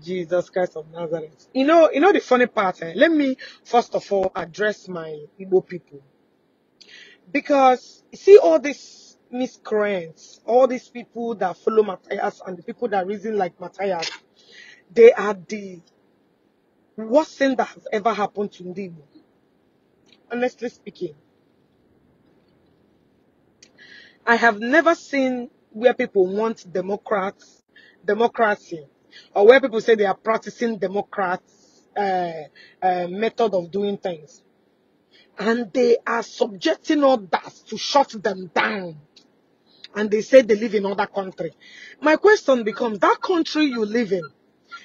Jesus Christ of Nazareth. You know, you know the funny part. Eh? Let me first of all address my Igbo people because you see all these miscreants, all these people that follow Matthias and the people that reason like Matthias, they are the worst thing that has ever happened to Igbo. Honestly speaking, I have never seen where people want democrats, democracy or where people say they are practicing Democrats' uh, uh, method of doing things. And they are subjecting others to shut them down. And they say they live in other country. My question becomes, that country you live in,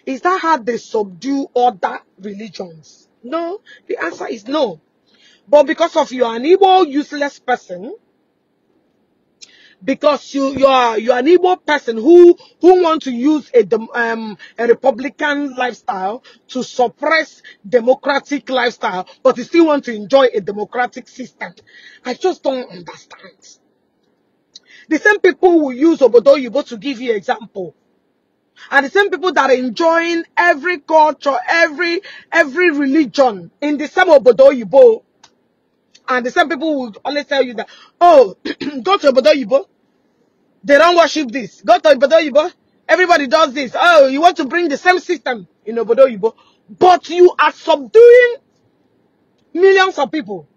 is that how they subdue other religions? No, the answer is no. But because of you are an evil, useless person, because you you are you are an evil person who who want to use a um a Republican lifestyle to suppress democratic lifestyle, but you still want to enjoy a democratic system. I just don't understand. The same people who use Obodoyibo to give you example are the same people that are enjoying every culture, every every religion in the same Yibo. And the same people will always tell you that, oh, go to Obodo Yibo. They don't worship this. Go to Obodo Yibo. Everybody does this. Oh, you want to bring the same system in Obodo Yibo. But you are subduing millions of people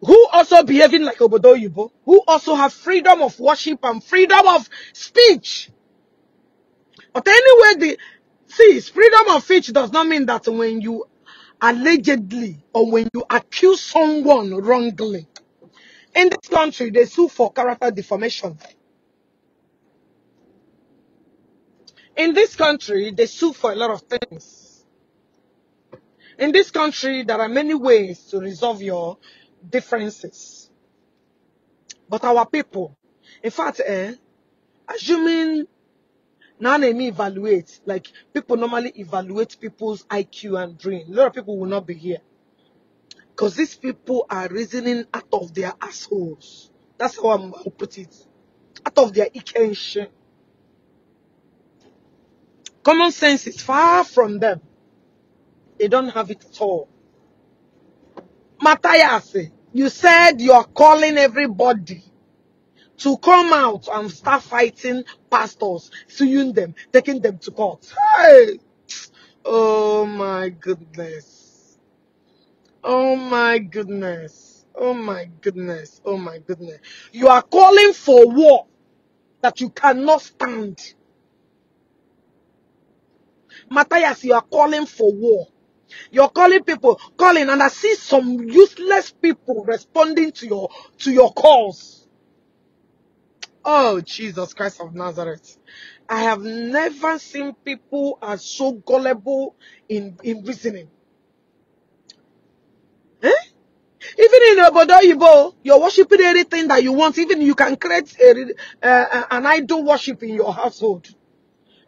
who also behaving like Obodo Yibo, who also have freedom of worship and freedom of speech. But anyway, the see, freedom of speech does not mean that when you allegedly or when you accuse someone wrongly. In this country, they sue for character defamation. In this country, they sue for a lot of things. In this country, there are many ways to resolve your differences. But our people, in fact, eh, assuming now let me evaluate. Like people normally evaluate people's IQ and brain. A lot of people will not be here. Because these people are reasoning out of their assholes. That's how I'm put it. Out of their ikenshin. Common sense is far from them. They don't have it at all. Matthias, you said you are calling everybody to come out and start fighting pastors, suing them, taking them to court. Hey! Oh my goodness. Oh my goodness. Oh my goodness. Oh my goodness. You are calling for war that you cannot stand. Matthias, you are calling for war. You're calling people, calling, and I see some useless people responding to your to your calls. Oh, Jesus Christ of Nazareth. I have never seen people as so gullible in, in reasoning. Eh? Even in Obodo Ibo, you're worshipping anything that you want. Even you can create a, uh, uh, an idol worship in your household.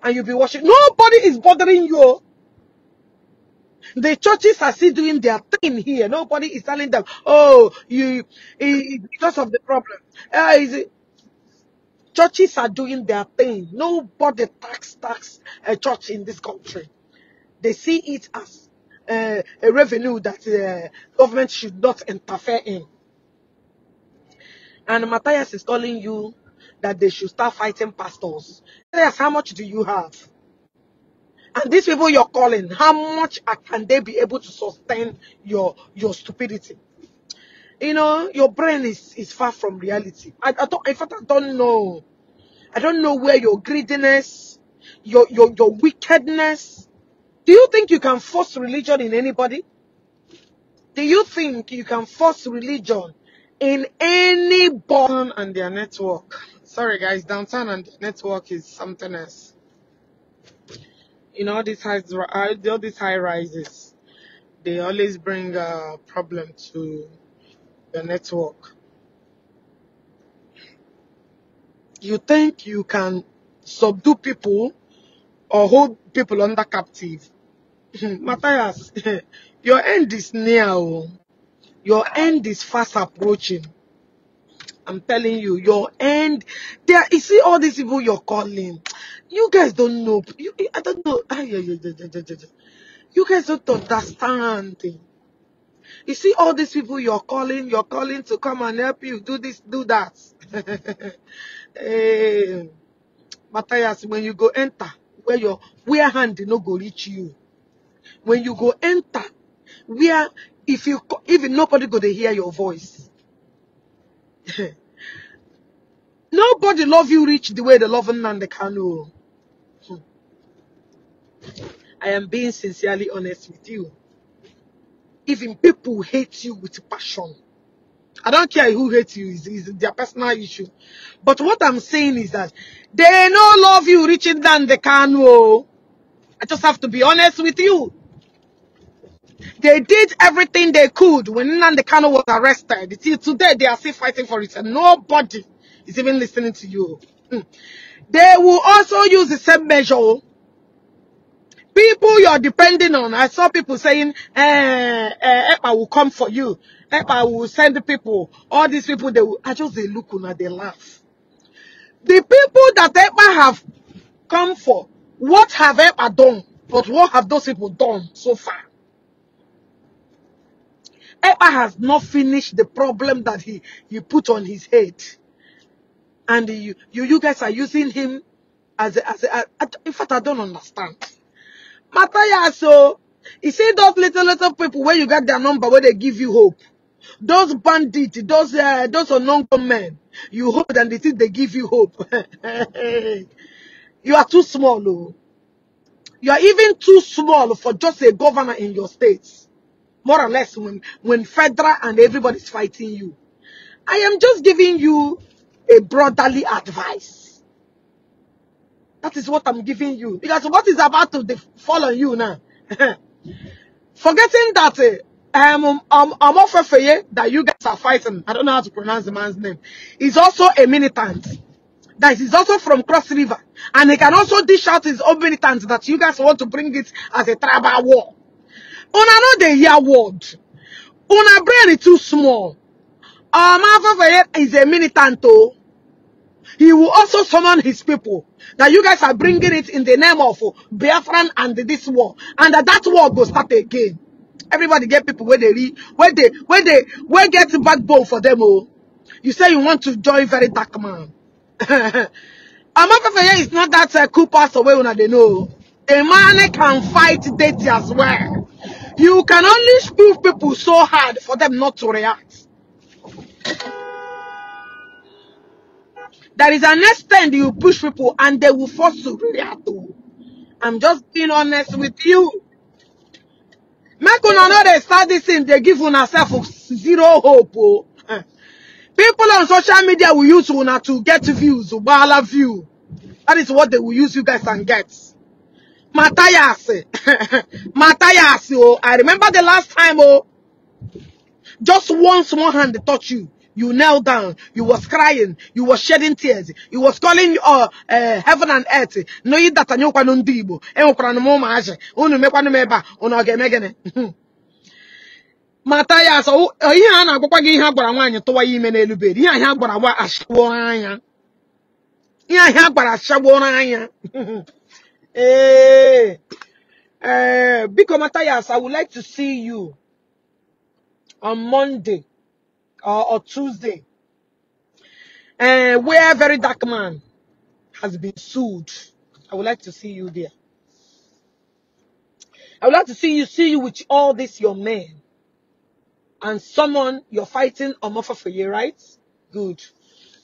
And you'll be worshiping. Nobody is bothering you. The churches are still doing their thing here. Nobody is telling them, oh, you, it, because of the problem. Uh, is it, Churches are doing their thing. Nobody tax tax a church in this country. They see it as uh, a revenue that uh, government should not interfere in. And Matthias is calling you that they should start fighting pastors. Matthias, how much do you have? And these people you're calling, how much can they be able to sustain your your stupidity? you know, your brain is, is far from reality. I, I don't, in fact, I don't know. I don't know where your greediness, your, your, your wickedness. Do you think you can force religion in anybody? Do you think you can force religion in any button and their network? Sorry guys, downtown and network is something else. In all these high, all these high rises, they always bring a uh, problem to the network. You think you can subdue people or hold people under captive. Matthias, your end is near. oh. Your end is fast approaching. I'm telling you, your end. There, you see all these people you're calling. You guys don't know. You, I don't know. Ah, yeah, yeah, yeah, yeah, yeah, yeah. You guys don't understand. You see all these people you're calling, you're calling to come and help you do this, do that. hey, eh, Matthias, when you go enter, where your where hand no go reach you. When you go enter, where if you even nobody go to hear your voice. nobody love you reach the way the they love the Kanu. Hmm. I am being sincerely honest with you even people hate you with passion. I don't care who hates you, it's, it's their personal issue. But what I'm saying is that they no love you reaching than the can. Oh. I just have to be honest with you. They did everything they could when the Kano was arrested. Till today, they are still fighting for it, and nobody is even listening to you. Hmm. They will also use the same measure oh people you're depending on. I saw people saying, eh, eh, EPA will come for you. EPA will send the people. All these people, they will, I just, they look and they laugh. The people that EPA have come for, what have EPA done? But what have those people done so far? EPA has not finished the problem that he, he put on his head. And you, you, you guys are using him as a, as in fact, I don't understand. Matthias, so he said those little little people where you got their number, where they give you hope. Those bandits, those uh, those unknown men, you hope and they think they give you hope. you are too small, oh. You are even too small for just a governor in your state. More or less when, when federal and everybody's fighting you. I am just giving you a brotherly advice. That is what I'm giving you. Because what is about to fall on you now? Forgetting that uh, um, um, um, Omofefeye that you guys are fighting, I don't know how to pronounce the man's name, is also a militant. That is also from Cross River. And he can also dish out his own militant that you guys want to bring it as a tribal war. Una know year, hear word. Una brain is too small. Omofefeye um, is a militant though. He will also summon his people. That you guys are bringing it in the name of Biafran and this war. And that, that war will start again. Everybody get people where they read, where they, where they, where get backbone for them. Oh, you say you want to join very dark man. Amapafaya is not that uh, cool pass away when they know. Oh. A man can fight dirty as well. You can only prove people so hard for them not to react. There is an extent you push people and they will force to react to. I'm just being honest with you. Make una know they start this thing, they give una self zero hope. Oh. People on social media will use una to get views, ball ubala view. That is what they will use you guys and get. Matayasi. Matayasi, oh. I remember the last time, oh. Just once one hand they touch you. You knelt down. You was crying. You was shedding tears. You was calling uh, uh, heaven and earth. No, you that anyị ụkwanụ ndị Igbo. Enwekwanụ m ụmụazị. Unu mekwanụ m ebe a. Unu ọ ga-eme gịnị? mata ya asọ ihe a na-agwakwa gị ihe a gwara nwaanyị tụwa ya ime n'elu bed ihe ahịa a gwara gwa ashagbuo anya ihe ahịa a gwara ashagbuo anya ee ee biko mata ya asọ I would like to see you on Monday or, or Tuesday, uh, where very dark man has been sued. I would like to see you there. I would like to see you see you with all this your men and someone you're fighting offer for you, right? Good.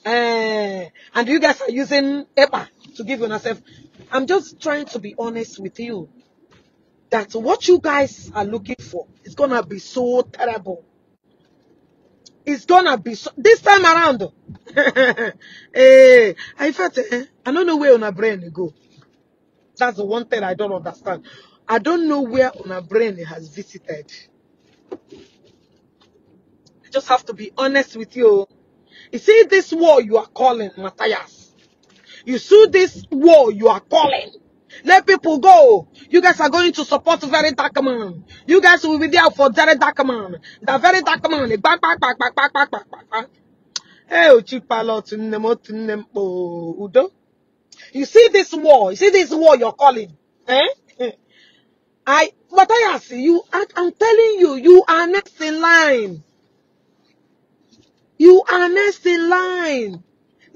Uh, and you guys are using EPA to give yourself. I'm just trying to be honest with you that what you guys are looking for is gonna be so terrible. It's gonna be so this time around. hey, I felt. eh, I don't know where on a brain go. That's the one thing I don't understand. I don't know where on a brain has visited. I just have to be honest with you. You see this war you are calling, Matthias. You see this war you are calling. Let people go. You guys are going to support very dark man. You guys will be there for very dark man. The very dark man. Back, eh, back, back, back, back, back, back, back, Hey, Uchipalot, oh, Udo. You see this war. You see this war you're calling. Eh? I, but I ask you, I, I'm telling you, you are next in line. You are next in line.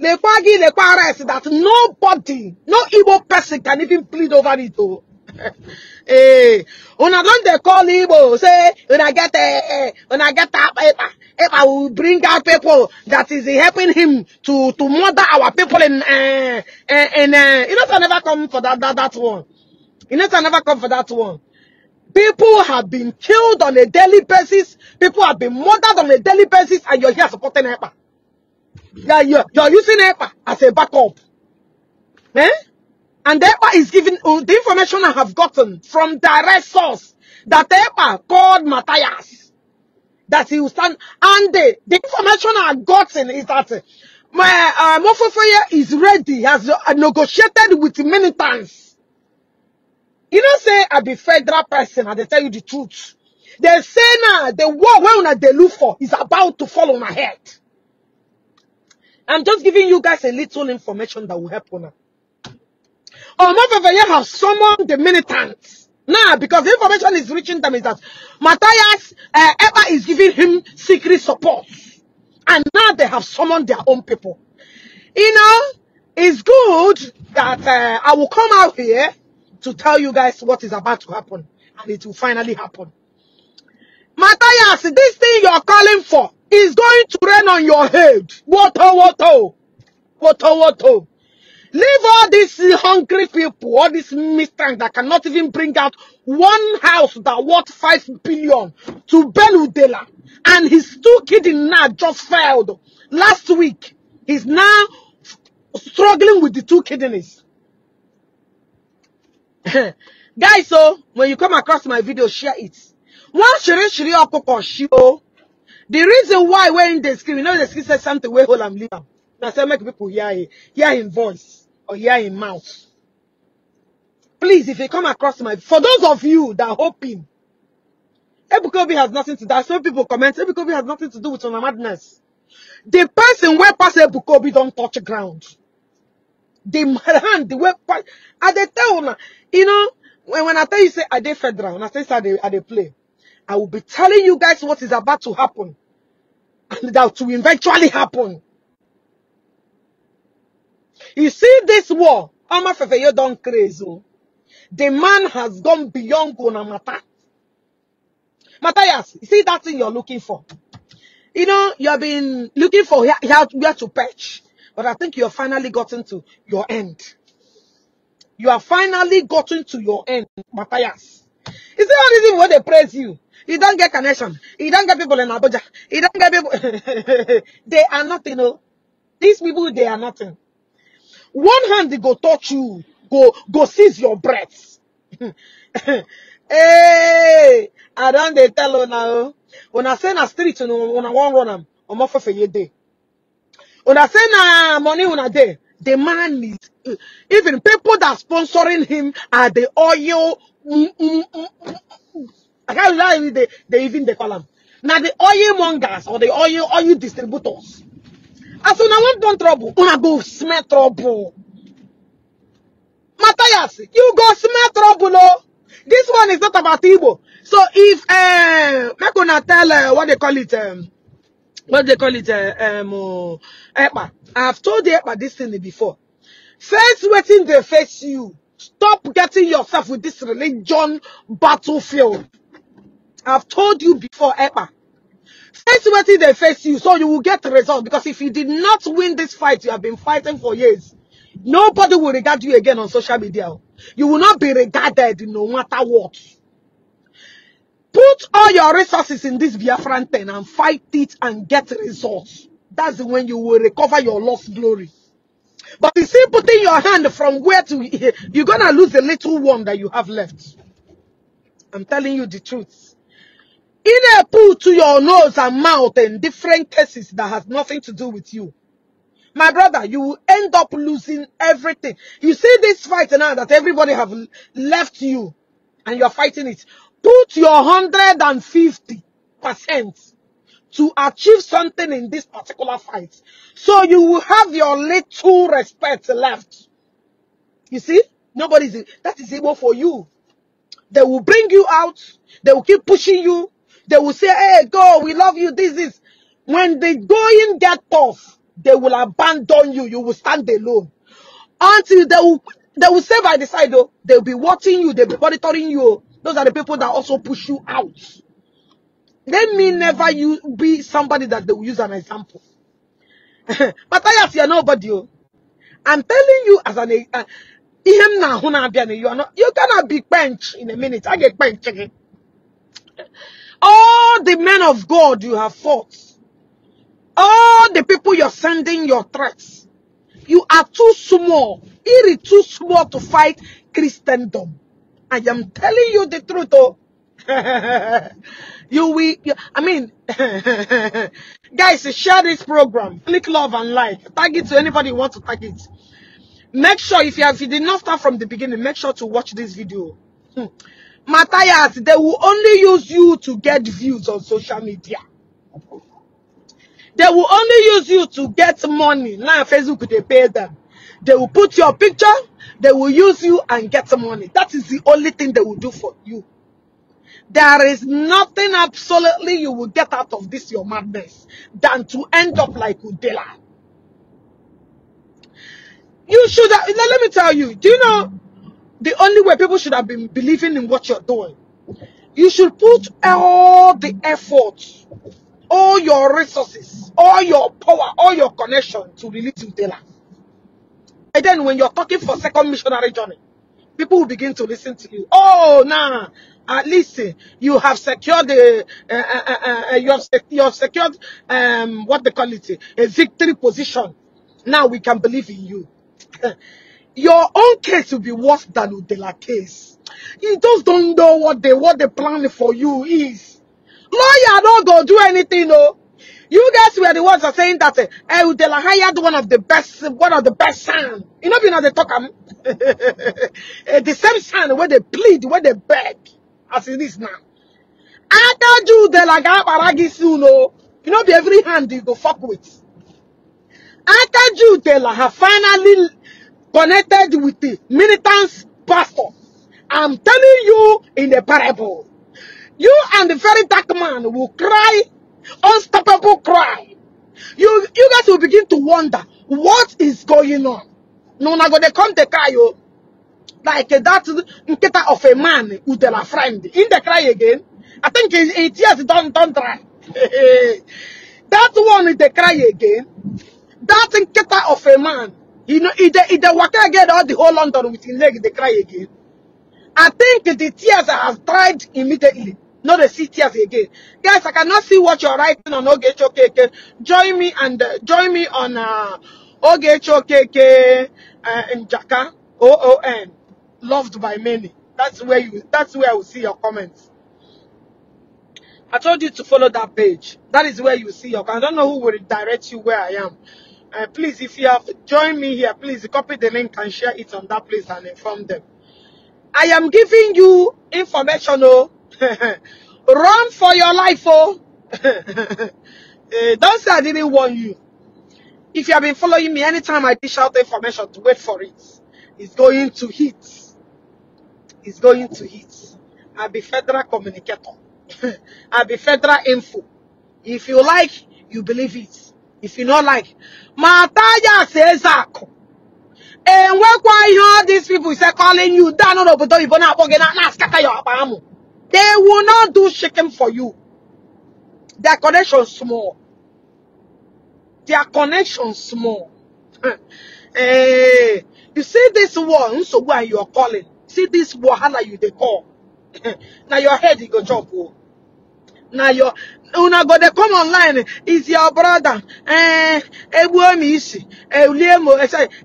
Lekwagi Lekwara is that nobody, no Igbo person can even plead over it. Oh. When eh, I don't, they call Igbo, say, when I get, eh, I eh, get that eh, paper. Epa will bring out people that is helping him to, to murder our people in, uh, in, uh, you know, I never come for that, that, that one. You know, I never come for that one. People have been killed on a daily basis. People have been murdered on a daily basis, and you're here supporting Epa. You're, you're, you're using EPA as a backup. Eh? And EPA is giving uh, the information I have gotten from direct source that EPA called Matthias. That he will stand. And the, the information I gotten is that my uh, is ready, has uh, negotiated with militants. You know, say I be federal person, and they tell you the truth. They say now the war where they look for is about to fall on my head. I'm just giving you guys a little information that will help on her. Omofefeye have summoned the militants. Now, nah, because the information is reaching them is that Matthias uh, eh, Eba is giving him secret support. And now they have summoned their own people. You know, it's good that uh, I will come out here to tell you guys what is about to happen. And it will finally happen. Matthias, this thing you are calling for, it's going to rain on your head. Water, water, water, water. Leave all these hungry people, all these mistrants that cannot even bring out one house that worth five billion to Beludela. And his two kids now just failed. Last week, he's now struggling with the two kidneys. Guys, so when you come across my video, share it. One shiri shiri okoko shio. The reason why we're in the screen, you know the screen says something, we hold am leave am That's how make people hear it. Hear him voice or hear him mouth. Please, if you come across my, for those of you that hope him, Ebukobi has nothing to do. I saw people comment, Ebukobi has nothing to do with Ona Madness. The person where pass Ebukobi don't touch ground. The hand, the way pass, I tell you know, when, when I tell you say, I did federal? When I say, I they play? I will be telling you guys what is about to happen that will eventually happen. You see this war, Ama Fefeyo don crazy. The man has gone beyond Gonamata. Matthias, you see that thing you're looking for. You know, you have been looking for here, where to perch, but I think you have finally gotten to your end. You have finally gotten to your end, Matthias. Is there a reason why they praise you? You don't get connection. You don't get people in Abuja. You don't get people. they are nothing. Oh. These people, they are nothing. One hand, they go touch you. Go, go seize your breath. hey, I don't they tell now. When I say na street, when I want run them, I'm off for a day. When I say na money on a day, the man is even people that are sponsoring him are the oil mm, mm, mm, I can't lie, with the the even the column. Now the oil mongers or the oil oil distributors. As soon as one trouble, una go smell trouble. Matthias, you go smell trouble, no? Oh. This one is not about Igbo. So if uh make una tell uh, what they call it um what they call it uh, um uh, Epa. I've told the Epa this thing before. Face waiting they face you. Stop getting yourself with this religion battlefield. I've told you before, Epa. Face what they face you, so you will get results. result. Because if you did not win this fight, you have been fighting for years. Nobody will regard you again on social media. You will not be regarded no matter what. Put all your resources in this Biafran thing and fight it and get results. That's when you will recover your lost glory. But you see, putting your hand from where to here, you're going to lose the little one that you have left. I'm telling you the truth. In a put to your nose and mouth in different cases that has nothing to do with you. My brother, you will end up losing everything. You see this fight now that everybody have left you and you're fighting it. Put your 150% to achieve something in this particular fight. So you will have your little respect left. You see? Nobody's, that is able for you. They will bring you out. They will keep pushing you. They will say, hey, go, we love you, this is. When the going get tough, they will abandon you. You will stand alone. Until they will, they will say by the side, though, they'll be watching you, they'll be monitoring you. Those are the people that also push you out. Let me never you be somebody that they will use an example. But ask you're nobody. I'm telling you as an uh, you are not you gonna be bench in a minute. I get bench again. All the men of God you have fought. All the people you're sending your threats. You are too small. It is too small to fight Christendom. I am telling you the truth. Oh. you will, you, I mean, guys, share this program. Click love and like. Tag it to anybody who wants to tag it. Make sure if you, have, if you did not start from the beginning, make sure to watch this video. Hmm. Matthias, they will only use you to get views on social media. They will only use you to get money. Now Facebook, they pay them. They will put your picture, they will use you and get money. That is the only thing they will do for you. There is nothing absolutely you will get out of this, your madness, than to end up like Udela. You should, let me tell you, do you know, the only way people should have been believing in what you're doing. You should put all the effort, all your resources, all your power, all your connection to release Utela. And then when you're talking for second missionary journey, people will begin to listen to you. Oh, nah, at least eh, you have secured the, uh, uh, you, have sec you have secured, um, what they call it, a victory position. Now we can believe in you. your own case will be worse than Udela case. You just don't know what they what the plan for you is. Lawyer don't go do anything, no. You guys were the ones that saying that uh, eh, Udela eh, hired one of the best, one of the best son. You know, you know they talk um, eh, the same son where they plead, where they beg, as it is now. I told you Udela got paragis, you know. You know, be every hand you go fuck with. I you, Judela have finally connected with the militant pastor. I'm telling you in the parable, you and the very dark man will cry, unstoppable cry. You, you guys will begin to wonder, what is going on? No, na go they come to cry you. Oh. Like that nketa of a man with a friend. In the cry again. I think eight years don't don't cry. that one in the cry again. That nketa of a man You know, if they, if they waka again, all the whole London with his leg, they cry again. I think the tears have dried immediately. Not the see tears again. Guys, I cannot see what you're writing on OGHOKK. Join me and uh, join me on uh, OGHOKK uh, in Jaka. O-O-N. Loved by many. That's where you. That's where I will see your comments. I told you to follow that page. That is where you see your. I don't know who will direct you where I am. Uh, please, if you have joined me here, please copy the link and share it on that place and inform them. I am giving you information, oh. Run for your life, oh. uh, don't say I didn't warn you. If you have been following me, anytime I dish out information, wait for it. It's going to hit. It's going to hit. I'll be federal communicator. I'll be federal info. If you like, you believe it if you not like ma says that, and when ihe all these people say calling you down n'obodo oyibo na-akpọ gị na akpo gi they will not do shaking for you their connection small their connection small eh you see this one, so why you are calling see this wahala you they call Now your head is go chop oh. Now your una go dey come online is your brother eh? egbuo m isi elie m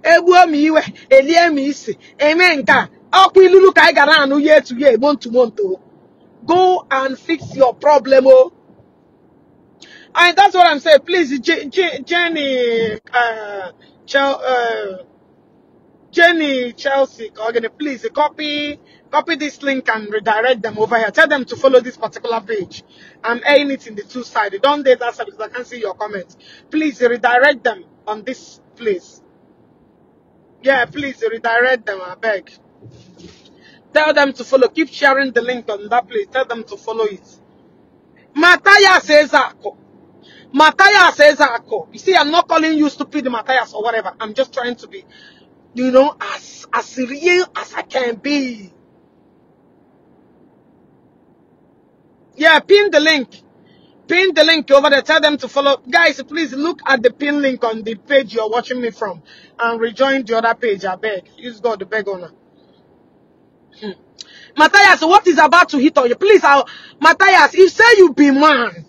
egbuo m iwe elie m isi eme nke a ilulu ka anyị gara anụ ya etu ya egbo ntumonto go and fix your problem o oh. and that's what i'm saying please jenny uh, uh, Jenny, Chelsea, Kogani, please copy, copy this link and redirect them over here. Tell them to follow this particular page. I'm airing it in the two sided. Don't do that because I can't see your comments. Please redirect them on this place. Yeah, please redirect them, I beg. Tell them to follow. Keep sharing the link on that place. Tell them to follow it. Matthias Ezako. Matthias Ezako. You see, I'm not calling you stupid Matthias or whatever. I'm just trying to be you know, as, as real as I can be. Yeah, pin the link. Pin the link over there. Tell them to follow. Guys, please look at the pin link on the page you're watching me from and rejoin the other page. I beg. Use God, the beg owner. Hmm. Matthias, what is about to hit on you? Please, I'll, Matthias, if say you be man,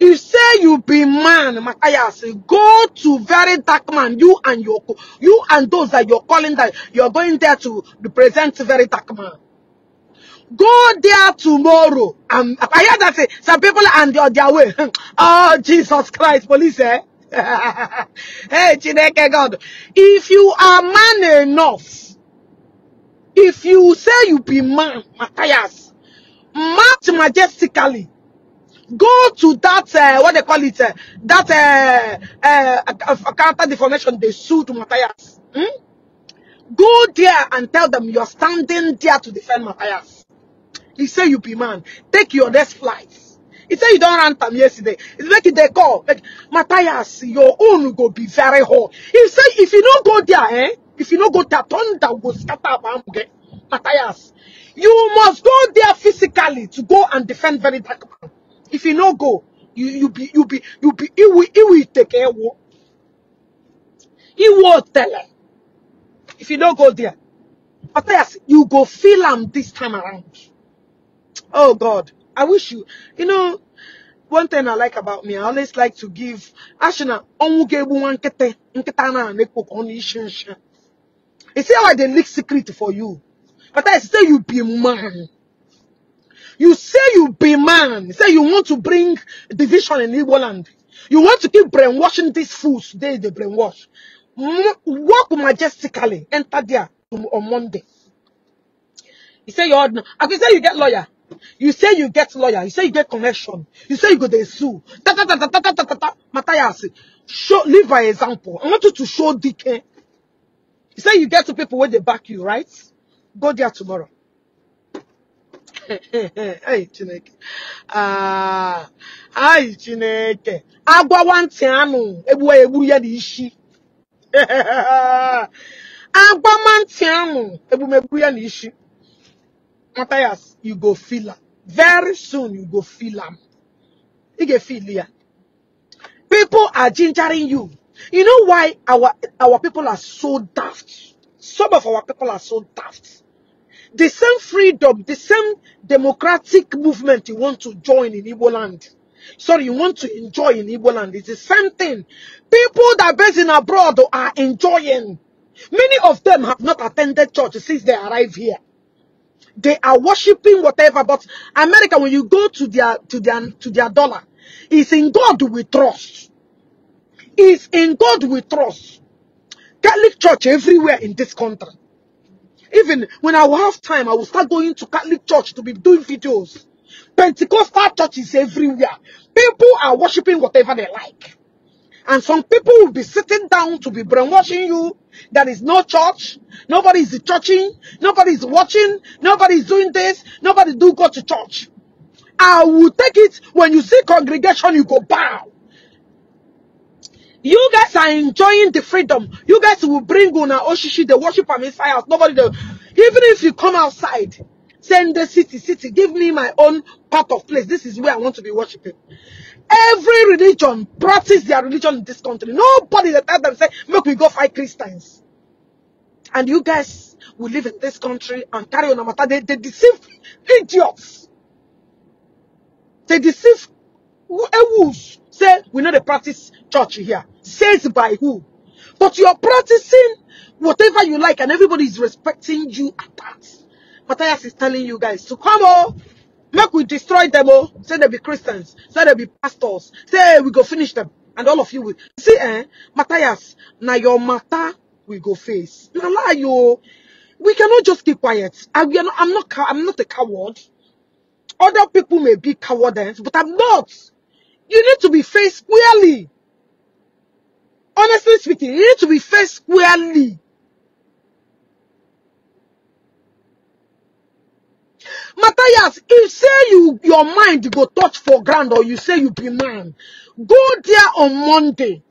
you say you be man, Matthias. Go to very dark man. You and your you and those that you're calling that you're going there to represent very dark man. Go there tomorrow. Um, I hear that say, some people are on their, their way. oh, Jesus Christ, police, eh? hey, Chineke God. If you are man enough, if you say you be man, Matthias, march majestically Go to that, uh, what they call it, uh, that uh, uh, character deformation they sued Matthias. Hmm? Go there and tell them you're standing there to defend Matthias. He say you be man. Take your next flight. He said you don't run him yesterday. It's like they call. Like, Matthias, your own go be very hot. He said if you don't go there, eh? If you don't go there, thunder will scatter about Matthias. You must go there physically to go and defend very dark man. If you no go, you you be you be you be it will it will take care. of. It will tell her. If you no go there, yes, you go feel them this time around. Oh God, I wish you. You know, one thing I like about me, I always like to give. Ashina, onwugebu You see how I they leak secret for you. But I say you be man. You say you be man. Say you want to bring division in Igbo land. You want to keep brainwashing these fools. They they brainwash. Walk majestically. Enter there on Monday. You say you're I can say you get lawyer. You say you get lawyer. You say you get connection. You say you go to sue. Ta ta ta ta ta ta ta ta ta. Matthias, show live by example. I want you to show DK. You say you get to people where they back you, right? Go there tomorrow. Aị Chineke. Ah, aị Chineke. Agwọwa ntị anụ egbuwa ya egburu ya dị isi. Agwọma ntị anụ egbumegbu ya na isi. Matthias, you go feel am. Very soon you go feel am. Ị ga-efeel ya. People are gingering you. You know why our our people are so daft? Some of our people are so daft. The same freedom, the same democratic movement you want to join in Igbo land. Sorry, you want to enjoy in Igbo land. It's the same thing. People that are based in abroad are enjoying. Many of them have not attended church since they arrived here. They are worshipping whatever, but America, when you go to their to their to their dollar, it's in God we trust. It's in God we trust. Catholic church everywhere in this country. Even when I will have time, I will start going to Catholic church to be doing videos. Pentecostal churches everywhere. People are worshiping whatever they like. And some people will be sitting down to be brainwashing you. There is no church. Nobody is churching. Nobody is watching. Nobody is doing this. Nobody do go to church. I will take it when you see congregation, you go bow. You guys are enjoying the freedom. You guys will bring Una Oshishi, the worship of inside house. Nobody, the, even if you come outside, send the city, city, give me my own part of place. This is where I want to be worshiping. Every religion practice their religion in this country. Nobody that tell them say, make we go fight Christians. And you guys will live in this country and carry on a matter. They, they deceive idiots. They deceive wolves say we know the practice church here. Says by who? But you're practicing whatever you like and everybody is respecting you at that. Matthias is telling you guys to come on. Oh. Make we destroy them all. Oh. Say they be Christians. Say they be pastors. Say we go finish them. And all of you will. See, eh? Matthias, now your matter we go face. Now lie you. Oh. We cannot just keep quiet. I, we are not, I'm not I'm not a coward. Other people may be cowards, but I'm not. You need to be faced squarely. Honestly speaking, you need to be faced squarely. Matthias, if say you your mind go touch for ground or you say you be man, go there on Monday.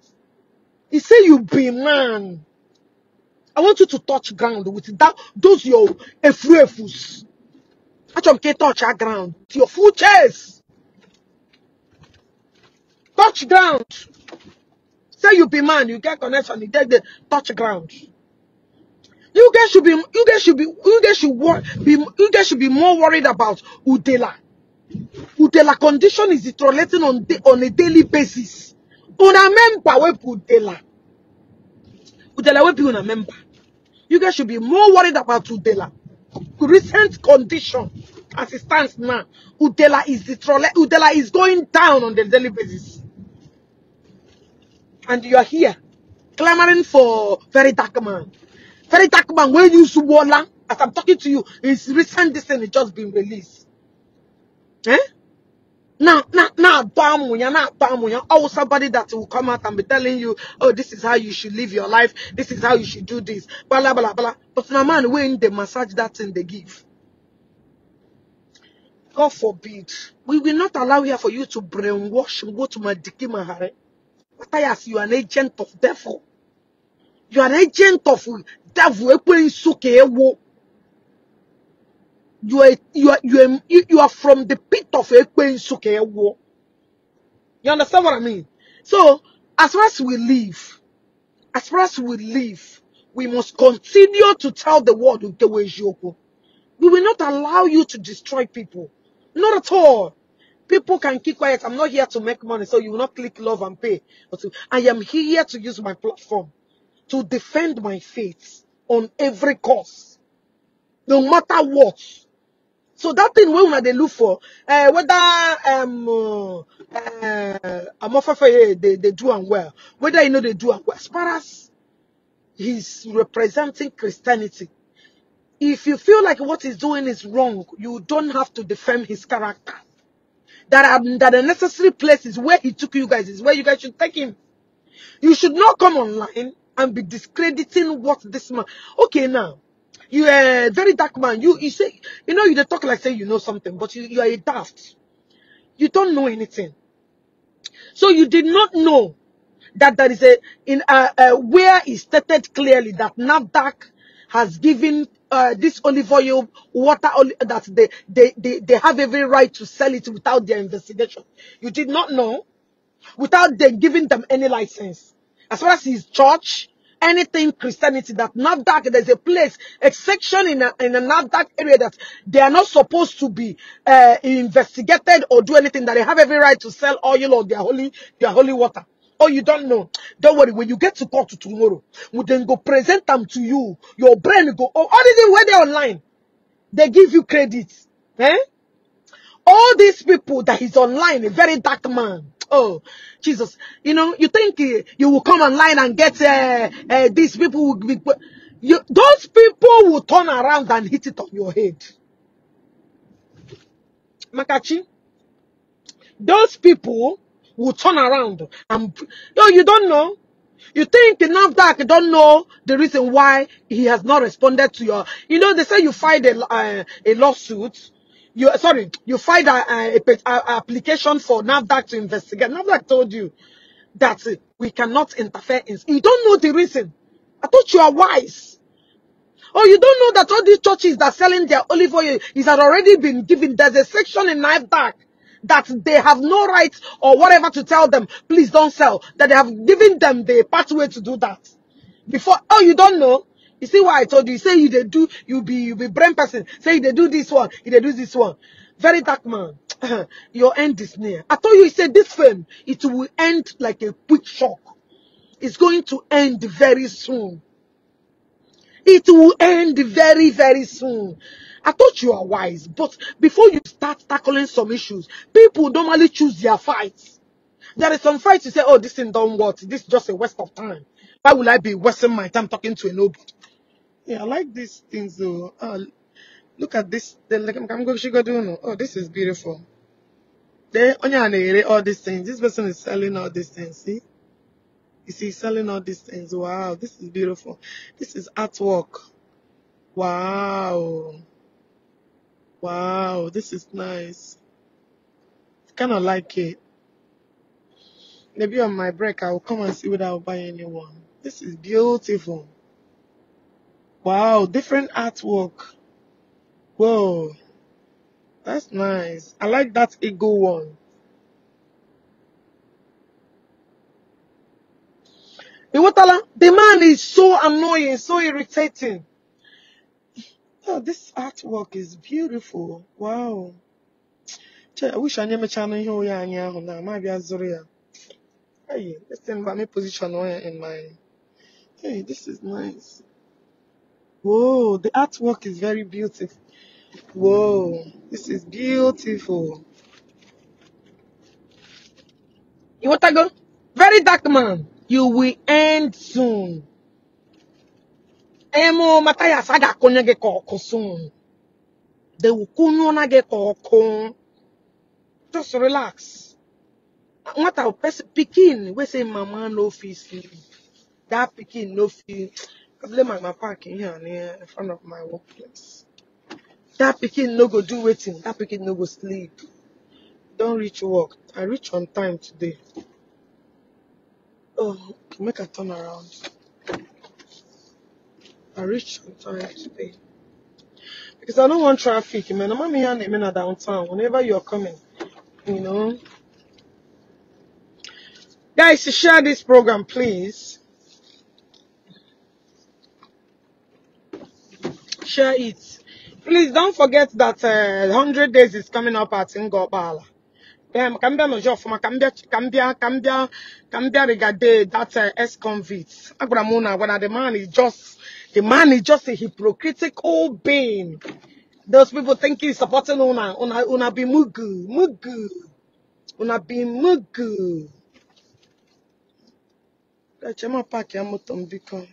If say you be man. I want you to touch ground with that those your efuefus. Achomke touch our ground. Your full chest. Touch ground. Say you be man, you get connection, you take the touch ground. You guys should be, you guys should be, you guys should be, you guys should be more worried about Udela. Udela condition is deteriorating on the, on a daily basis. Una member we Udela. Udela we be una member. You guys should be more worried about Udela. Recent condition as it stands now, Udela is Udela is going down on the daily basis and you are here clamoring for very dark man. Very dark man, when you Subola, as I'm talking to you, his recent has just been released. Eh? Now, now, now, bam, you're not bam, you're oh, somebody that will come out and be telling you, oh, this is how you should live your life, this is how you should do this, blah, blah, blah, But now, man, when they massage that thing they give, God forbid, we will not allow here for you to brainwash and go to Madiki Mahare. Caiaphas, you are an agent of devil. You are an agent of devil. You are, you are, you are, you are from the pit of Ekwensuke. You understand what I mean? So, as far as we live, as far as we live, we must continue to tell the world We will not allow you to destroy people. Not at all. People can keep quiet. I'm not here to make money, so you will not click love and pay. But I am here to use my platform to defend my faith on every cause, no matter what. So that thing we una they look for, uh, whether um uh, eh, Amofafeye eh, they they do and well, whether you know they do and well. As far as he's representing Christianity, if you feel like what he's doing is wrong, you don't have to defend his character that are that the necessary places where he took you guys is where you guys should take him. You should not come online and be discrediting what this man. Okay, now you are a very dark man. You you say you know you talk like say you know something, but you, you are a daft. You don't know anything. So you did not know that there is a in a, a where he stated clearly that NADAC has given uh, this olive oil, water oil, that they, they, they, they have every right to sell it without their investigation. You did not know without them giving them any license. As far as his church, anything Christianity that that there's a place, a section in a, in a area that they are not supposed to be uh, investigated or do anything, that they have every right to sell oil or their holy, their holy water or you don't know, don't worry. When you get to court tomorrow, we then go present them to you. Your brain go, oh, already where they online, they give you credit. Eh? All these people that is online, a very dark man. Oh, Jesus. You know, you think uh, you will come online and get uh, uh, these people will be... You, those people will turn around and hit it on your head. Makachi, those people will turn around and no, you don't know. You think You don't know the reason why he has not responded to your, you know, they say you filed a, uh, a lawsuit. You, sorry, you filed a application for NAVDAC to investigate. NAVDAC told you that we cannot interfere. In, you don't know the reason. I thought you are wise. Oh, you don't know that all these churches that are selling their olive oil is already been given. There's a section in NAVDAC that they have no right or whatever to tell them, please don't sell, that they have given them the pathway to do that. Before, oh, you don't know? You see why I told you? you say you they do, you be you be brain person. Say they do this one, they do this one. Very dark man. Your end is near. I told you, he said this film, it will end like a quick shock. It's going to end very soon. It will end very, very soon. I thought you are wise, but before you start tackling some issues, people normally choose their fights. There is some fights you say, oh, this thing don't work. This is just a waste of time. Why will I be wasting my time talking to a nobody? Yeah, I like these things though. Uh, look at this. The, I'm going to Oh, this is beautiful. all these things. This person is selling all these things. See? You see, selling all these things. Wow, this is beautiful. This is artwork. Wow. Wow, this is nice. Kind of like it. Maybe on my break, I will come and see whether I'll buy anyone. This is beautiful. Wow, different artwork. Whoa, that's nice. I like that eagle one. the man is so annoying, so irritating. Oh, this artwork is beautiful. Wow. I wish I nemecha na channel here. Oh yeah, now maybe bịa zụrụ ya. Hey, this thing va me position in my Hey, this is nice. Whoa, the artwork is very beautiful. Whoa, this is beautiful. You want to go? Very dark man. You will end soon emu mataya saga konya ge kokosun. They will kunyona ge kokon. Just relax. What our person picking, we say mama no feel sleep. That picking no feel. I blame my parking here and here in front of my workplace. That picking no go do waiting. That picking no go sleep. Don't reach work. I reach on time today. Oh, make a turn around. I reach on time today. Because I don't want traffic, man. I'm here and I'm downtown. Whenever you're coming, you know. Guys, share this program, please. Share it. Please don't forget that uh, 100 days is coming up at Ngobala. Um, ka m bịa n'ụjọ ọfụma ka from a ka m bịa ka m that uh, ex-convict agwara m the man is just the man is just a hypocritical being. Those people think he's supporting Una. Una, una be mugu. Mugu. Una be mugu. Gachema pack your motor become.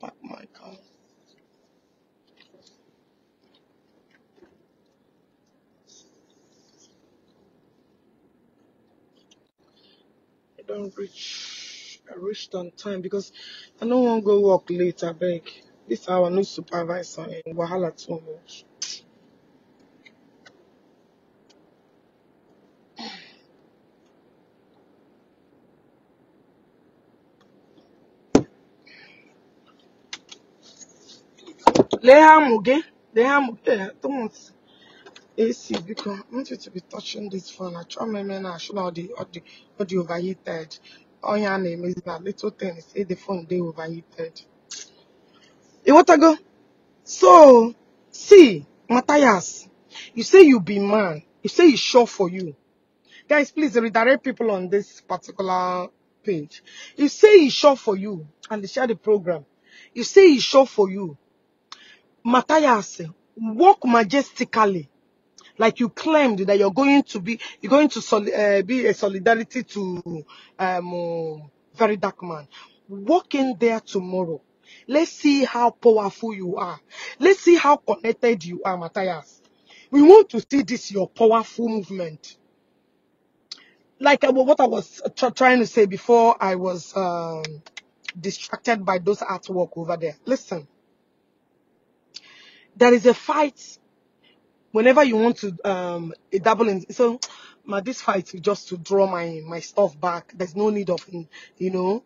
Pack my car. I don't reach. I reached on time because I don't want to go work later, beg. This our new supervisor in eh, Wahala too much. Lee ha amụ gị, lee ha amụ gị, Thomas AC biko, I want to be touching this phone. Achọ m eme na achọ na ọ dị ọ dị ọ dị overheated. Onye a na-emezi na little things, say the phone dey overheated. go? so, see, Matthias, you say you be man. You say it's sure for you. Guys, please redirect people on this particular page. You say it's sure for you, and they share the program. You say it's sure for you. Matthias, walk majestically like you claimed that you're going to be you're going to soli- uh, be a solidarity to um, very dark man walk in there tomorrow Let's see how powerful you are. Let's see how connected you are, Matthias. We want to see this, your powerful movement. Like uh, what I was trying to say before I was um, distracted by those artwork over there. Listen, there is a fight whenever you want to um, double in. So, my, this fight is just to draw my, my stuff back. There's no need of, you know,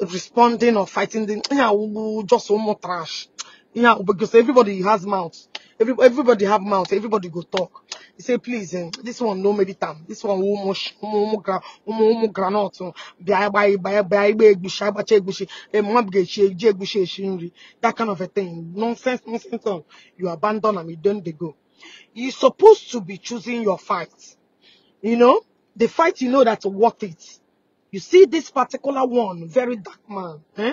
responding or fighting them. yeah, we- just one more trash. Yeah, because everybody has mouths. Every, everybody have mouths. Everybody go talk. He say, please, eh, this one no meditam. This one umu sh- umu umu gra umu granot. Oh. Eh, that kind of a thing. Nonsense, nonsense. Oh. You abandon them. You don't they go. You're supposed to be choosing your fight. You know the fight. You know that's worth it you see this particular one, very dark man. Eh?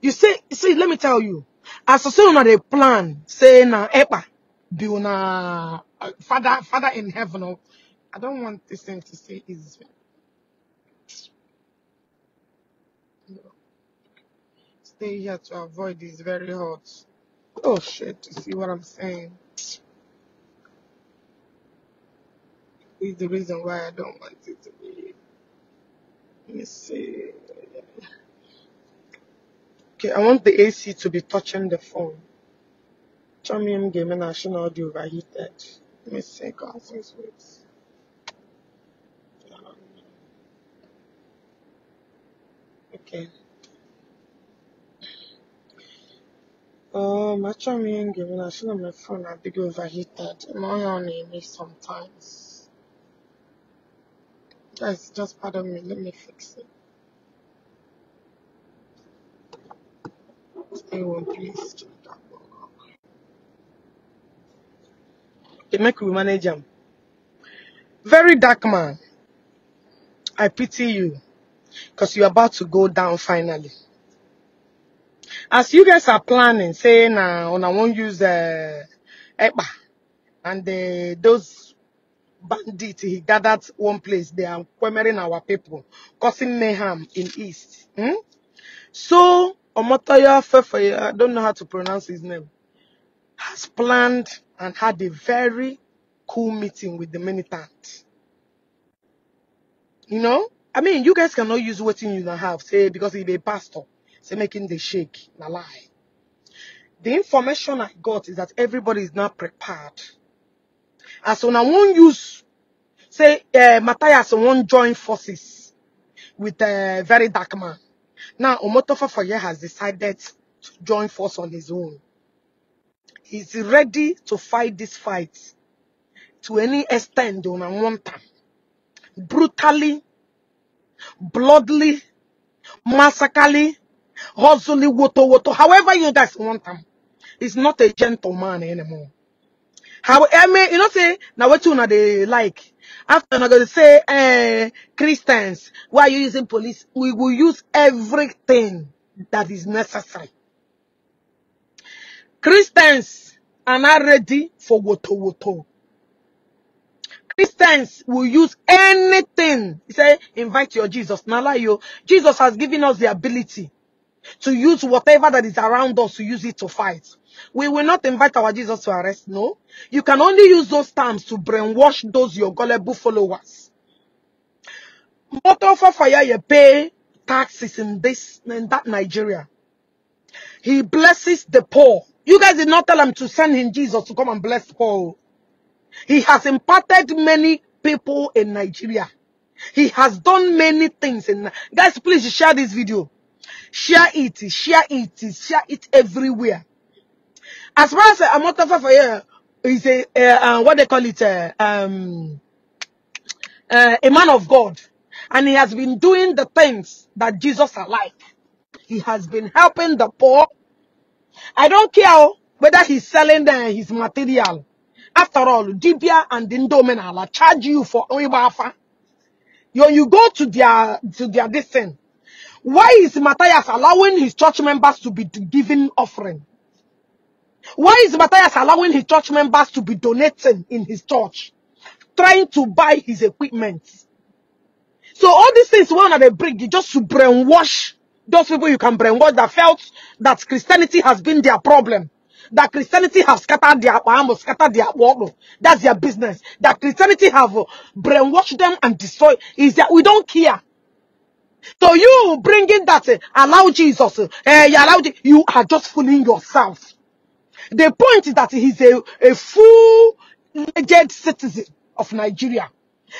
You see, see, let me tell you. As soon as they plan, say na epa, eh, be una uh, father, father in heaven. Oh, I don't want this thing to say is. Stay here to avoid this very hot. Oh shit! You see what I'm saying? Is the reason why I don't want it to be. Let me see. Okay, I want the AC to be touching the phone. Chromium gaming national audio overheated. Let me see. God six weeks. Um, Okay. Um, my chromium gaming national my phone I think overheated. My on me sometimes. Just, just pardon me. Let me fix it. Anyone, please that They make we manage them. Very dark man. I pity you because you're about to go down finally. As you guys are planning, saying, uh, I won't use uh, eh, EPA and uh, those bandit. He gathered one place. They are quemering our people, causing mayhem in East. Hmm? So, Omotoya Fefeya, I don't know how to pronounce his name, has planned and had a very cool meeting with the militant. You know? I mean, you guys cannot use what you don't have, say, because he's a pastor. Say, making the shake, na lie. The information I got is that everybody is not prepared as one wan use say eh, matthias one join forces with a eh, very dark man now omotofa foye has decided to join force on his own he's ready to fight this fight to any extent a one time, brutally bloodily massacrally hustling woto woto however you guys want him, he's not a gentleman anymore how I mean, you know, say now what you know they like. After I'm gonna say, eh, Christians, why are you using police? We will use everything that is necessary. Christians are not ready for woto woto. Christians will use anything. He say, invite your Jesus. you, Jesus has given us the ability to use whatever that is around us to use it to fight. We will not invite our Jesus to arrest. No. You can only use those terms to brainwash those your gullible followers. Motor for fire, you pay taxes in this in that Nigeria. He blesses the poor. You guys did not tell him to send him Jesus to come and bless Paul. poor. He has imparted many people in Nigeria. He has done many things. In, guys, please share this video. Share it. Share it. Share it everywhere. As far as uh, Amotafa for here is a uh, uh, what they call it uh, um, uh, a man of God, and he has been doing the things that Jesus are like. He has been helping the poor. I don't care whether he's selling uh, his material. After all, Dibia and Indomenala charge you for Oibafa. You, you go to their to their this thing. Why is Matthias allowing his church members to be giving offering? Why is Matthias allowing his church members to be donating in his church? Trying to buy his equipment. So all these things one at a bring just to brainwash those people you can brainwash that felt that Christianity has been their problem. That Christianity has scattered their almost scattered their world. That's their business. That Christianity have brainwashed them and destroyed. Is that we don't care. So you bringing that uh, allow Jesus, uh, you allow you are just fooling yourself. The point is that he's a, a full-fledged citizen of Nigeria.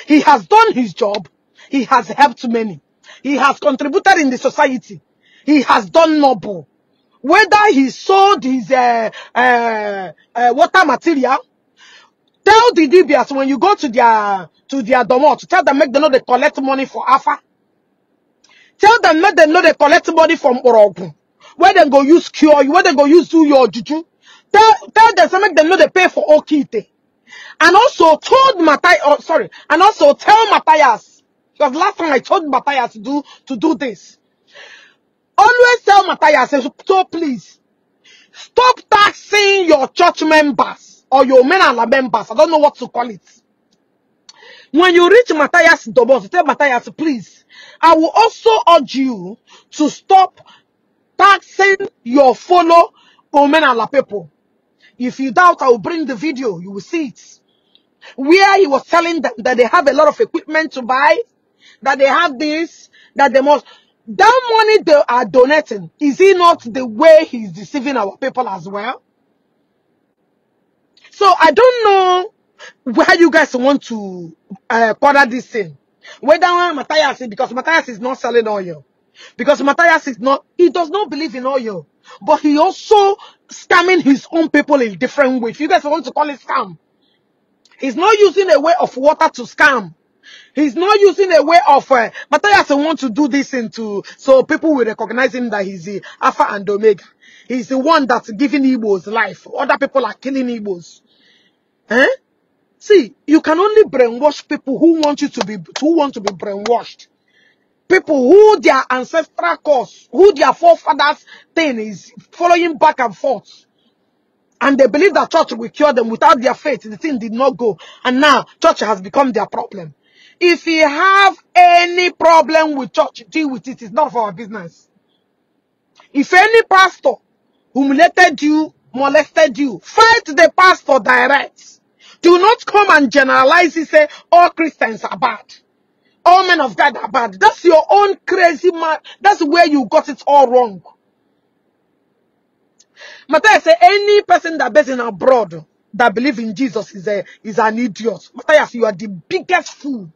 He has done his job. He has helped many. He has contributed in the society. He has done noble. Whether he sold his uh, uh, uh, water material, tell the DBS when you go to their to their domo to tell them make them know they collect money for Alpha. Tell them make them know they collect money from Orogun. Where they go use cure you, where they go use do your juju. Tell, tell them, say make them know they pay for Okite. And also told Matthias, oh, sorry, and also tell Matthias, because last time I told Matthias to do, to do this. Always tell Matthias, so please, stop taxing your church members or your menala members. I don't know what to call it. When you reach Matthias Dobos, tell Matthias, please, I will also urge you to stop taxing your fellow Omenala people. If you doubt, I will bring the video. You will see it. Where he was telling them that they have a lot of equipment to buy, that they have this, that they must. That money they are donating, is he not the way he's deceiving our people as well? So I don't know where you guys want to uh, quarter this thing. Whether Matthias, because Matthias is not selling oil. Because Matthias is not, he does not believe in oil but he also scamming his own people in different ways. If you guys want to call it scam, he's not using a way of water to scam. He's not using a way of uh, Matthias want to do this into so people will recognize him that he's the Alpha and Omega. He's the one that's giving Igbos life. Other people are killing Igbos. Eh? See, you can only brainwash people who want you to be who want to be brainwashed people who their ancestral cause, who their forefathers thing is following back and forth. And they believe that church will cure them. Without their faith, the thing did not go. And now, church has become their problem. If you have any problem with church, deal with it. It's not for our business. If any pastor humiliated you, molested you, fight the pastor direct. Do not come and generalize and say, all Christians are bad. All men of God are bad. That's your own crazy man. That's where you got it all wrong. Matthias say any person that based in abroad that believe in Jesus is a is an idiot. Matthias, you are the biggest fool.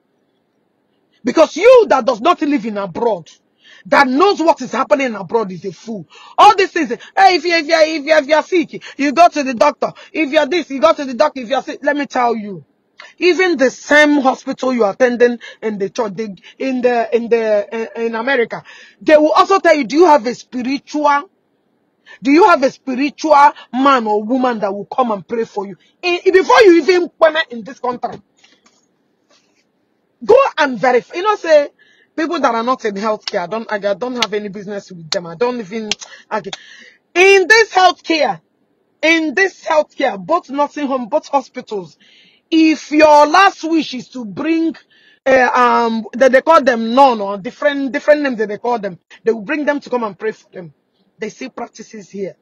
Because you that does not live in abroad, that knows what is happening abroad is a fool. All these things, hey, if you if you if you if you're sick, you go to the doctor. If you're this, you go to the doctor. If you're sick, let me tell you. Even the same hospital you're attending in the church, in the in the eh, in America, they will also tell you, do you have a spiritual do you have a spiritual man or woman that will come and pray for you? In- before you even come in this country, go and verify. You know, say people that are not in healthcare, I don't, I don't have any business with them. I don't even, okay. In this healthcare, in this healthcare, both nursing home, both hospitals, if your last wish is to bring uh, um that they call them non or different different names that they call them, they will bring them to come and pray for them. They see practices here.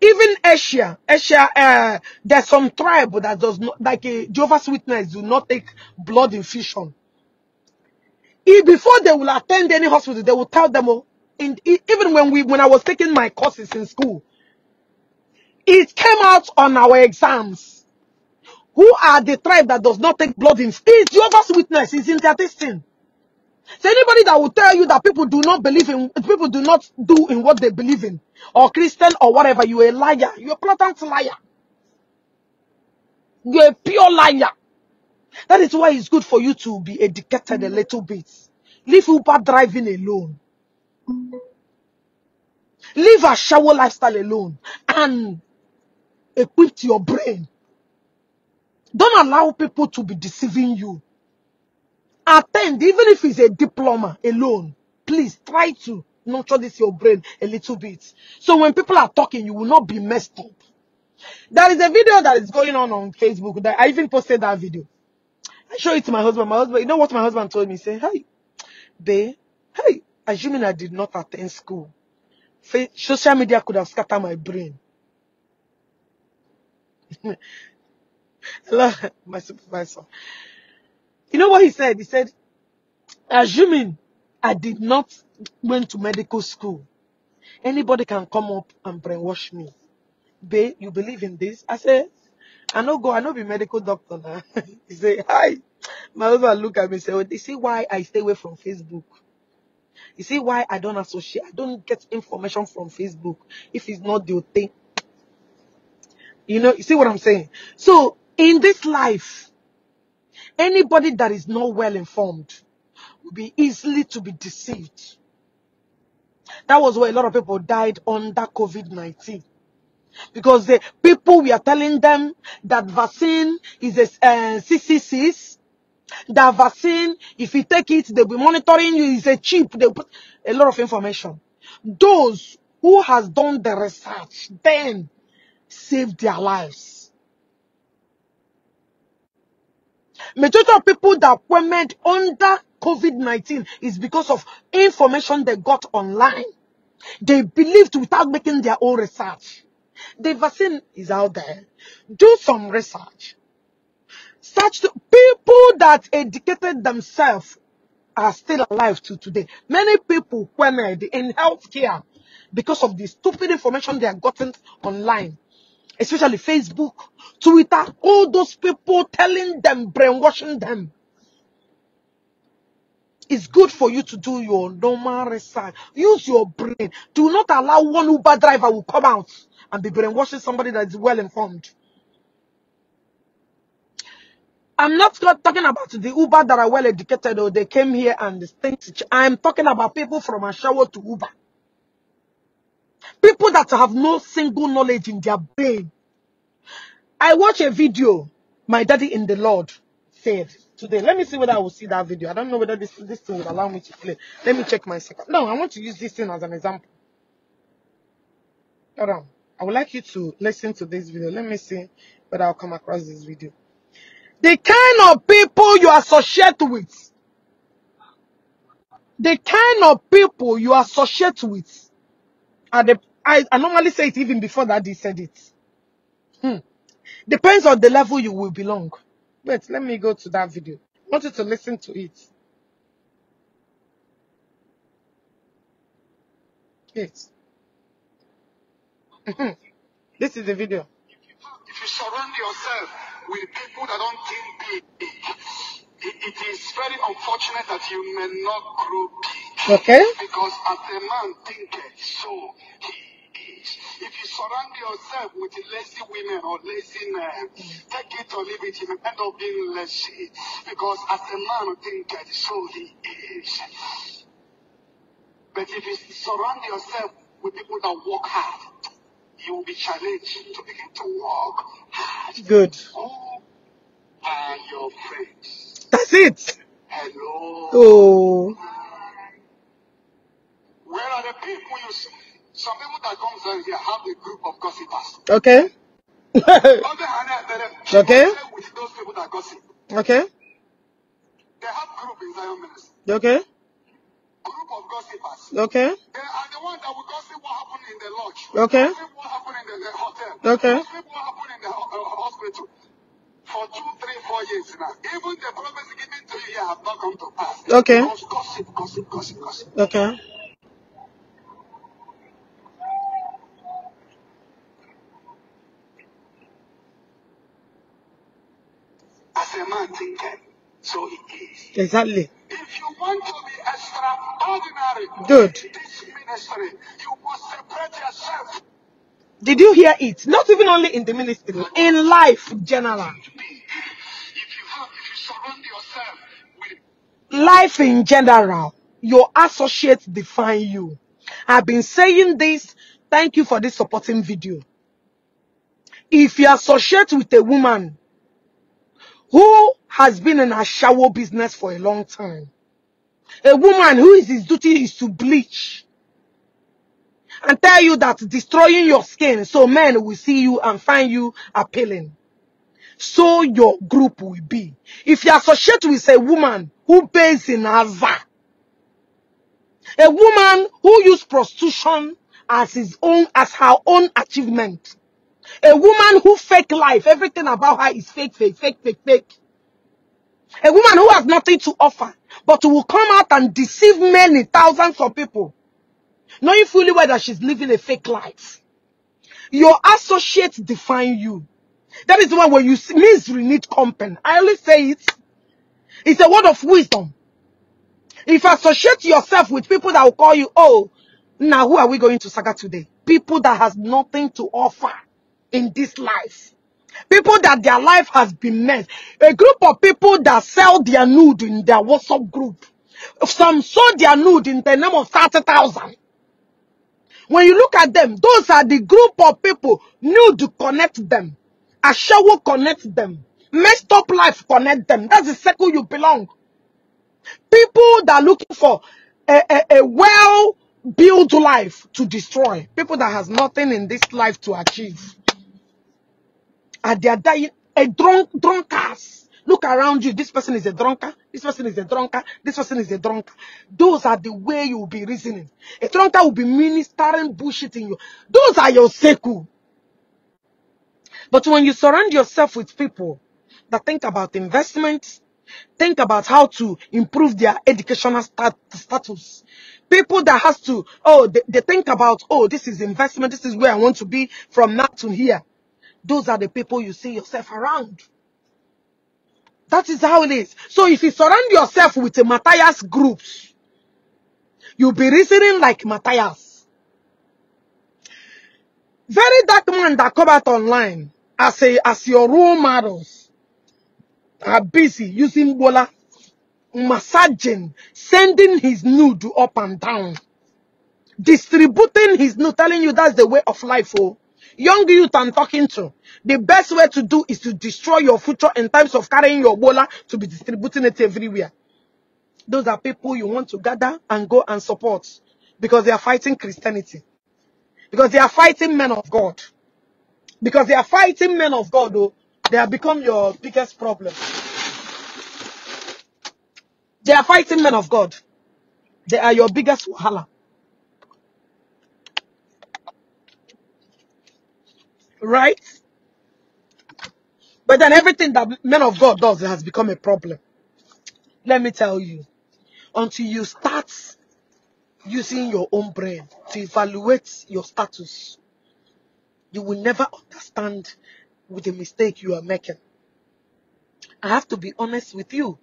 Even Asia, Asia, uh, there's some tribe that does not like a eh, Jehovah's Witness do not take blood infusion. If before they will attend any hospital, they will tell them, oh, in, even when we when I was taking my courses in school, it came out on our exams who are the tribe that does not take blood in? It's Jehovah's Witness. is in their testing. So anybody that will tell you that people do not believe in, people do not do in what they believe in, or Christian or whatever, you're a liar. You're a blatant liar. You're a pure liar. That is why it's good for you to be educated a little bit. Leave Uber driving alone. Leave a shower lifestyle alone and equip your brain don't allow people to be deceiving you. Attend, even if it's a diploma alone, please try to nurture this your brain a little bit. So when people are talking, you will not be messed up. There is a video that is going on on Facebook that I even posted that video. I show it to my husband. My husband, you know what my husband told me? He said, hey, babe, hey, assuming I did not attend school, social media could have scattered my brain. Hello, my supervisor. You know what he said? He said, assuming I did not went to medical school, anybody can come up and brainwash me. Babe, you believe in this? I said, I no go, I no be medical doctor now. he said, hi. My husband look at me and say, oh, you see why I stay away from Facebook? You see why I don't associate, I don't get information from Facebook if it's not the thing. You know, you see what I'm saying? So in this life, anybody that is not well informed will be easily to be deceived. That was why a lot of people died under COVID 19 because the people we are telling them that vaccine is a uh, eh, CCCs, that vaccine, if you take it, they'll be monitoring you, is a chip, they put a lot of information. Those who has done the research then saved their lives. Majority of people that went under COVID-19 is because of information they got online. They believed without making their own research. The vaccine is out there. Do some research. Such people that educated themselves are still alive to today. Many people queried in healthcare because of the stupid information they are gotten online especially Facebook, Twitter, all those people telling them, brainwashing them. It's good for you to do your normal research. Use your brain. Do not allow one Uber driver will come out and be brainwashing somebody that is well informed. I'm not talking about the Uber that are well educated or they came here and think. I'm talking about people from Ashawo to Uber. People that have no single knowledge in their brain. I watched a video, my daddy in the Lord said today. Let me see whether I will see that video. I don't know whether this, this thing will allow me to play. Let me check my second. No, I want to use this thing as an example. Hold on. I would like you to listen to this video. Let me see whether I'll come across this video. The kind of people you associate with. The kind of people you associate with at the I, I normally say it even before that he said it. Hmm. Depends on the level you will belong. Wait, let me go to that video. I want you to listen to it. Yes. Hmm. this is the video. If you, if you surround yourself with people that don't think big, it, it is very unfortunate that you may not grow big. Okay? Because as a man thinketh, so he is. If you surround yourself with lazy women or lazy men, take it or leave it, you will end up being lazy. Because as a man thinketh, so he is. But if you surround yourself with people that work hard, you will be challenged to begin to work hard. Good. Who are your friends? That's it. Hello. Oh. Where are the people you see? Some people that comes down here have a group of gossipers. Okay. On okay. With those people that gossip. Okay. They have group in Zion Ministry. Okay. Group of gossipers. Okay. They are the ones that will gossip what happened in the lodge. Okay. Gossip what happened in the, the hotel. Okay. Gossip what happened in the uh, uh, hospital for two, three, four years now. Even the promise given to you have not come to pass. Okay. gossip, gossip, gossip, gossip. Okay. Exactly. If you want to be extraordinary Dude. in this ministry, you must yourself. Did you hear it? Not even only in the ministry, in life in general. If you have, if you surround yourself with life in general, your associates define you. I've been saying this. Thank you for this supporting video. If you associate with a woman who has been in a shower business for a long time. A woman who is his duty is to bleach and tell you that destroying your skin so men will see you and find you appealing. So your group will be. If you associate with a woman who pays in Ava, a woman who uses prostitution as his own, as her own achievement, a woman who fake life, everything about her is fake, fake, fake, fake, fake. A woman who has nothing to offer, but who will come out and deceive many thousands of people, knowing fully well that she's living a fake life. Your associates define you. That is why when you misery need company. I always say it. It's a word of wisdom. If you associate yourself with people that will call you, oh, now who are we going to saga today? People that has nothing to offer in this life. People that their life has been messed. A group of people that sell their nude in their WhatsApp group. Some sold their nude in the name of 30,000. When you look at them, those are the group of people nude connect them. shower connect them. Messed up life connect them. That's the circle you belong. People that are looking for a, a, a well-built life to destroy. People that has nothing in this life to achieve. They are dying a drunk drunkards. Look around you. This person is a drunkard. This person is a drunkard. This person is a drunkard. Those are the way you will be reasoning. A drunkard will be ministering bullshit in you. Those are your seku. But when you surround yourself with people that think about investments, think about how to improve their educational stat status. People that has to, oh, they, they think about, oh, this is investment. This is where I want to be from now to here. Those are the people you see yourself around. That is how it is. So if you surround yourself with the Matthias groups, you'll be reasoning like Matthias. Very dark man that come out online as a, as your role models are busy using Bola, massaging, sending his nude up and down, distributing his nude, telling you that's the way of life. Oh, young youth I'm talking to, the best way to do is to destroy your future in terms of carrying your bola to be distributing it everywhere. Those are people you want to gather and go and support because they are fighting Christianity. Because they are fighting men of God. Because they are fighting men of God, though, they have become your biggest problem. They are fighting men of God. They are your biggest wahala. right? But then everything that men of God does has become a problem. Let me tell you, until you start using your own brain to evaluate your status, you will never understand with the mistake you are making. I have to be honest with you.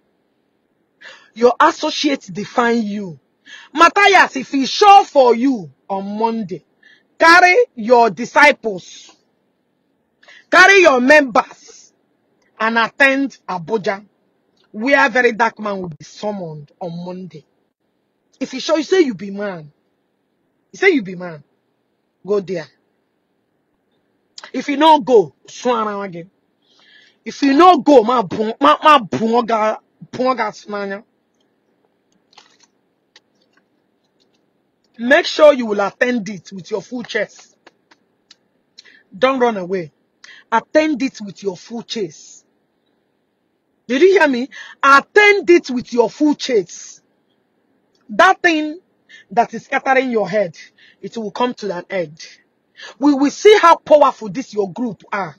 Your associates define you. Matthias, if he show for you on Monday, carry your disciples Carry your members and attend Abuja, where very dark man will be summoned on Monday. If he show you say you be man, you say you be man, go there. If you no go, swan around again. If you no go, my bu ma ma bunga bunga snanya. Make sure you will attend it with your full chest. Don't run away. Attend it with your full chase. Did you hear me? Attend it with your full chase. That thing that is scattering your head, it will come to an end. We will see how powerful this your group are.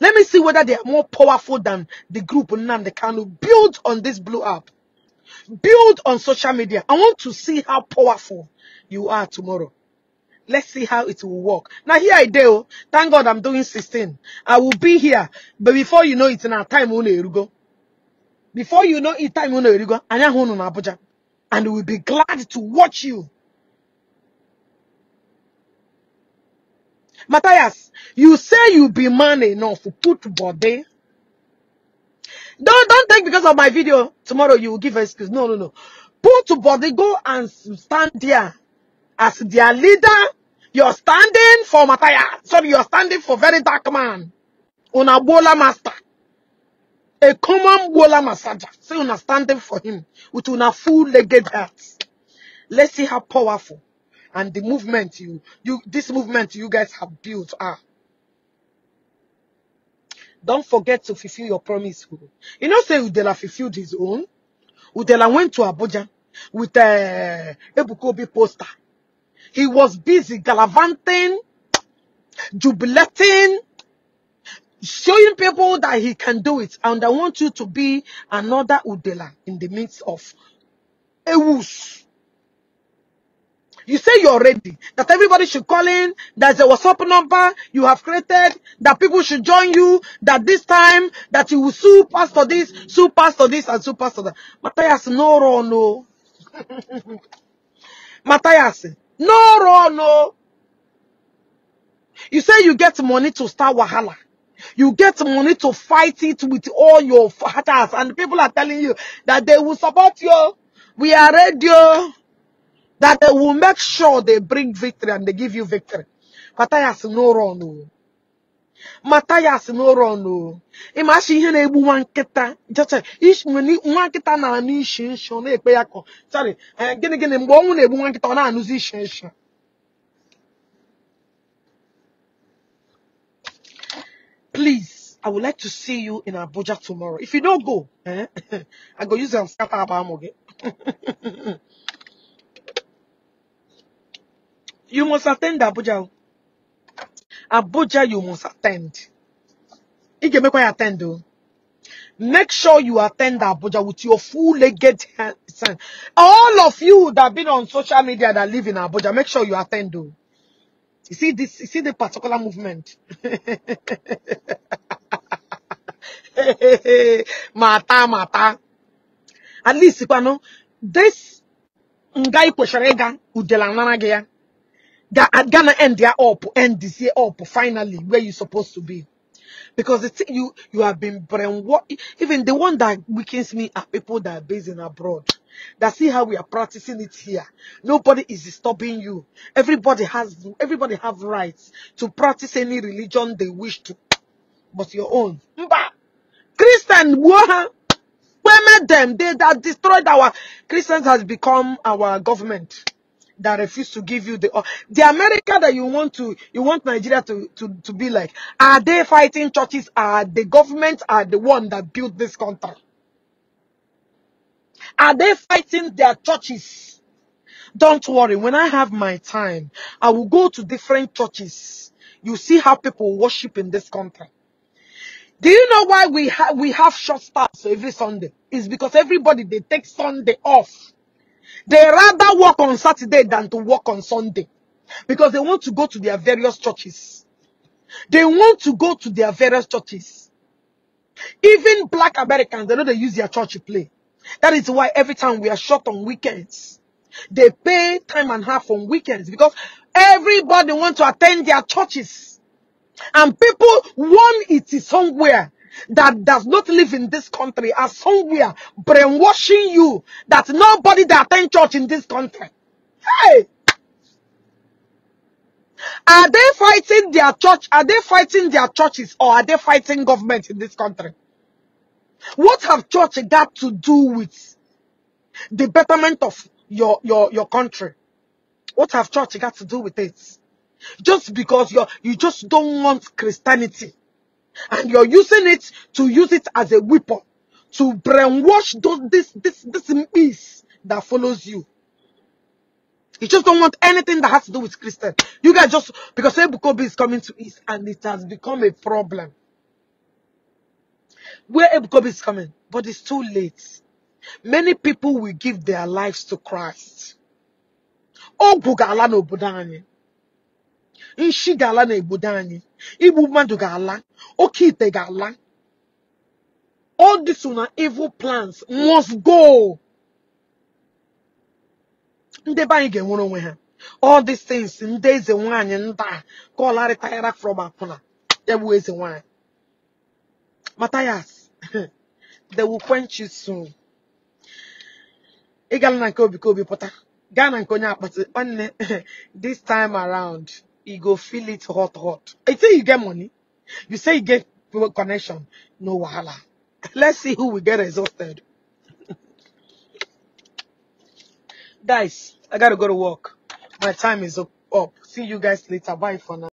Let me see whether they are more powerful than the group They can Build on this blow up. Build on social media. I want to see how powerful you are tomorrow. Let's see how it will work. Now here I do. Oh. Thank God I'm doing 16. I will be here. But before you know it now, time will go. Before you know it, time will go. And we'll be glad to watch you. Matthias, you say you be man enough. Put body. Don't don't think because of my video tomorrow you will give excuse. No, no, no. Put body, go and stand there as their leader you're standing for Mataya. Sorry, you're standing for very dark man. Una bola master. A common bola massager. so una standing for him with una full-legged hats. Let's see how powerful and the movement you, you, this movement you guys have built are. Don't forget to fulfill your promise. You know, say Udela fulfilled his own. Udela went to Abuja with a uh, Ebukobi poster he was busy gallivanting, jubilating, showing people that he can do it. And I want you to be another Udela in the midst of a whoosh. You say you're ready, that everybody should call in, there's a WhatsApp number you have created, that people should join you, that this time, that you will sue pastor this, sue pastor this, and sue pastor that. Matthias, no, no, no. Matthias, no no, no. You say you get money to start Wahala. You get money to fight it with all your fighters. And people are telling you that they will support you. We are ready. Oh. That they will make sure they bring victory and they give you victory. But I ask no no, no. Mata ya n'ụlọ n'ụrọnụ ịma asị ihe na-egbu nwa nkịta eh, nwa nkịta na-anụ ishi nshi na-ekpe ya kọ eh, gịnị gịnị mgbe ọnwụ na-egbu nwa nkịta ọ na-anụzi ishi nshi please, I would like to see you in Abuja tomorrow. If you don't go, eh, I go use them scatter abamoge. You must attend Abuja. Abuja, you must attend. make you attend oh. Make sure you attend Abuja with your full legged All of you that have been on social media that live in Abuja, make sure you attend though. You see this, you see the particular movement. mata, mata. At least, you know, this guy kwesịrị ịga udela nara gị Ga- at Ghana end their up, end this year up, finally, where you supposed to be. Because the thing you you have been brainwashed. Even the one that weakens me are people that are based in abroad. That see how we are practicing it here. Nobody is stopping you. Everybody has everybody have rights to practice any religion they wish to, but your own. Christian, where women them they that destroyed our Christians has become our government that refuse to give you the uh, the America that you want to you want Nigeria to, to, to be like? Are they fighting churches? Are the government are the one that built this country? Are they fighting their churches? Don't worry, when I have my time, I will go to different churches. You see how people worship in this country. Do you know why we, we have short staffs every Sunday? It's because everybody, they take Sunday off they rather work on Saturday than to work on Sunday because they want to go to their various churches. They want to go to their various churches. Even black Americans, they know they use their church to play. That is why every time we are short on weekends, they pay time and half on weekends because everybody wants to attend their churches. And people want it somewhere that does not live in this country are somewhere brainwashing you that nobody that attend church in this country. Hey! Are they fighting their church? Are they fighting their churches or are they fighting government in this country? What have church got to do with the betterment of your, your, your country? What have church got to do with it? Just because you you just don't want Christianity and you're using it to use it as a weapon to brainwash those, this this this miss that follows you. You just don't want anything that has to do with Christian. You guys just because Ebukobi is coming to East and it has become a problem. Where Ebukobi is coming, but it's too late. Many people will give their lives to Christ. Ogwu ga ala n'obodo anyị. Nshi igbu mmadụ ga-ala oke ite ga-ala all this na evil plans must go ndị be anyị ga-enwere onwe ha all these things ndị eze nwaanyị nta ka ọ larịtara from akwụna ya bụ eze nwaanyị Matthias they will quench you soon ị gala na nke obi ka obi pụta gaa na nke onye akpati nwanne this time around you go feel it hot, hot. I say you get money. You say you get connection. No wahala. Let's see who will get exhausted. Guys, I gotta go to work. My time is up. See you guys later. Bye for now.